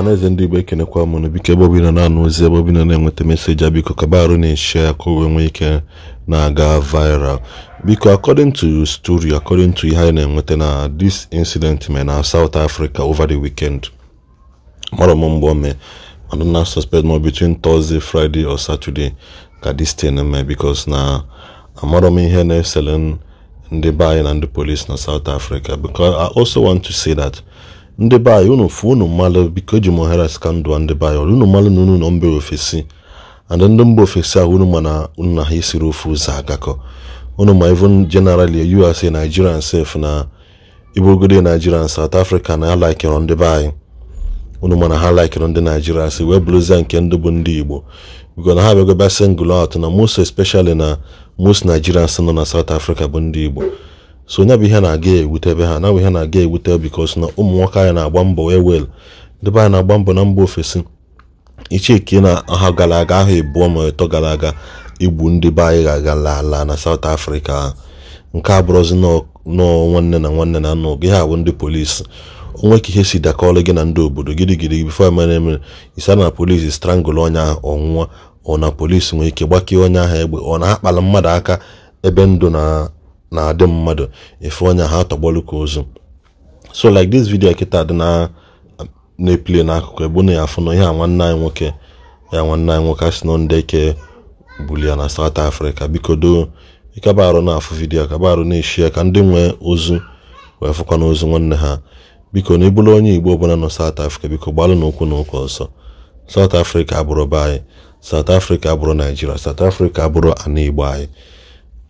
ọhaneze ndị igbo ekenekwa mụnụ biko ebe obina na-anụ ozi ebe ọbụla na-enweta meseji a ah, biko kaba arụ na-eshi ya ka o nwee ike na-aga viral biko according to story according to ihe anyị na-enweta na this incident me na South Africa over the weekend mara m mgbe ome mana na suspect ma between Thursday Friday or Saturday ka this thing mee because na amara m ihe na-esele ndị be anyị na ndị polis na South Africa because I also want to say that ndị be anyị unu fụ unu mmalụ biko eji m ohere sika ndụ ndị be anyị unu mmalụ na unu nọ mba ofesi and ndị mba ofesi ahụ unu ma na unu na ha isiri ofe ụzọ agakọ unu ma even generally us nigerian sef na iburugode nigerian south africa na alaikere ndị be anyị unu ma na ha laikere ndị naijiria si wee bụrụzie nke ndị bụ ndị igbo biko na ha bịagoba singl out na most especially na most nigerians nọ na south africa bụ ndị igbo so nya bụ ihe na-aga ewutebe ha na bụ ihe na-aga ewute bikos na ụmụ nwoke anyị na-agba mbọ wee wel ndị anyị na-agba mbọ na mba ofesi icheke na ha gara aga ahụ ebuo ma ịtọ gara aga igbu ndị be anyị ga-agala ala na saut afrịka nke abụrụzi nọọ nwanne na nwanne na nna gị ha bụ ndị polisi onwe ka ihe si dakọrọ gị na ndị obodo gidigidi bifo emere emere isa na polisi strangụlụ onye ahụ ọnwụnwa ọ na polisi nwere ike gbakee onye ahụ egbe ọ na-akpala mmadụ aka ebe ndụ na na-adị mmadụ efe ọnya ha tọgbọlụ ka ozu so like this video kịta dị na na-eplie n'akụkụ ebe na ya afụ ihe a nwanne anyị nwoke ya nwanne anyị nwoke asị na ndị eke bulia na South Africa biko doo ịkabarụ na-afụ vidiyo kabarụ na-eshie ka ndị nwee ozu wee fụkwa ozu nwanne ha biko na ịbụrụ onye igbo ọbụla nọ South Africa biko gbalụ n'ụkwụ n'ụkwụ ọsọ South Africa abụrụ be anyị South Africa abụrụ Nigeria South Africa abụrụ ana igbo anyị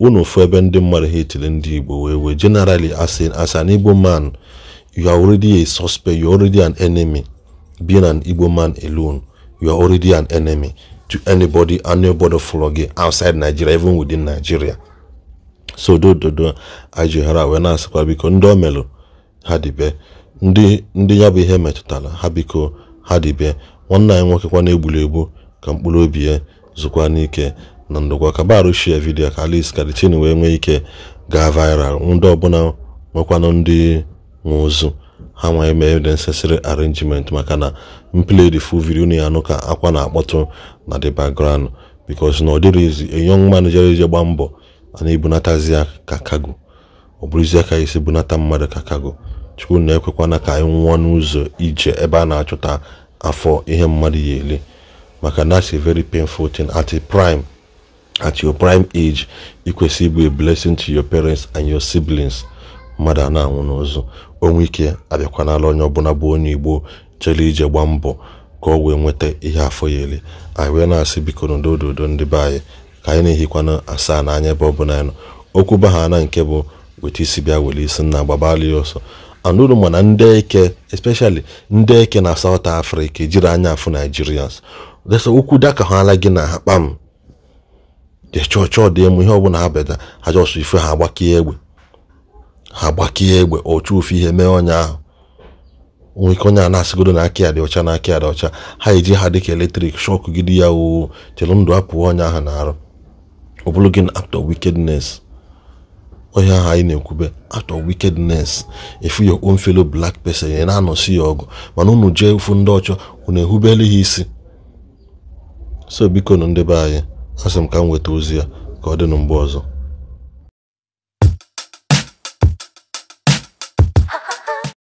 unu ofu ebe ndị mmadụ ha etiri ndị igbo wee wee generally as an, igbo man you are already a suspect you are already an enemy being an igbo man alone you are already an enemy to anybody anybody follow outside nigeria even within nigeria so dododo ajighara wee na-asịkwa biko ndị o melụ ha dibe ndị ndị ya bụ ihe metụtara ha biko ha dibe nwanne anyị nwoke kwa na-egburu egbu ka mkpụrụ obi ya zụkwa n'ike na ndụgwa ka barushia vidiyo ka Alice Karitin wee nwee ike gaa viral ndị ọbụla nwekwanụ ndị nwe ha nwee mee the arrangement maka na mplay the full video na anụ ka akwa na-akpọtụ na the background bikos na ọ dịrịzi a young man gba mbọ a na-ebunatazi ya ka kago ọ bụrụzi aka isi bunata mmadụ ka kago chukwu na-ekwekwana ka anyị nwụọ n'ụzọ ije ebe a na-achọta afọ ihe mmadụ ya ele maka na very painful thing at a prime at your prime age ikwesị ịbụ a blessing to your parents and your siblings mmadụ a na-anwụ n'ụzụ onwe ike abịakwanala onye ọbụla bụ onye igbo chere ije gbaa mbọ ka ọ wee nweta ihe afọ ya ele anyị wee na-asị biko na udododo ndị be anyị ka anyị na-ehikwana asaa n'anya ebe ọbụla anyị nọ okwu baha na nke bụ weta isi bịa were isi nna gbabala ya ọsọ anụrụ mana ndị eke especially ndị eke na South Africa ejiri anya afụ Nigerians desa okwu daka ha ala gị na ha kpam chọọ dị emu ihe ọbụla ha beta ha jọsụ ife ha agbakie egbe ha agbakie egbe ofe ihe mee onye ahụ nwoke onye a na-asịgodo na aka ya dị ọcha na aka ya dị ọcha ha eji ha dịka eletrik shọkụ gidi ya oo chere ndụ apụọ ọnya ahụ na-arụ ọ bụrụ gị na act of onye ahụ anyị na-ekwube act wikednes wickedness oh, efu your own fellow black person ya na-anọsi ya ọgụ mana unu jee ofu ndị ọchọ unu ehubele ha isi so biko nụ ndị be anyị asị m ka m weta ozi ya ka ọ dị mgbe ọzọ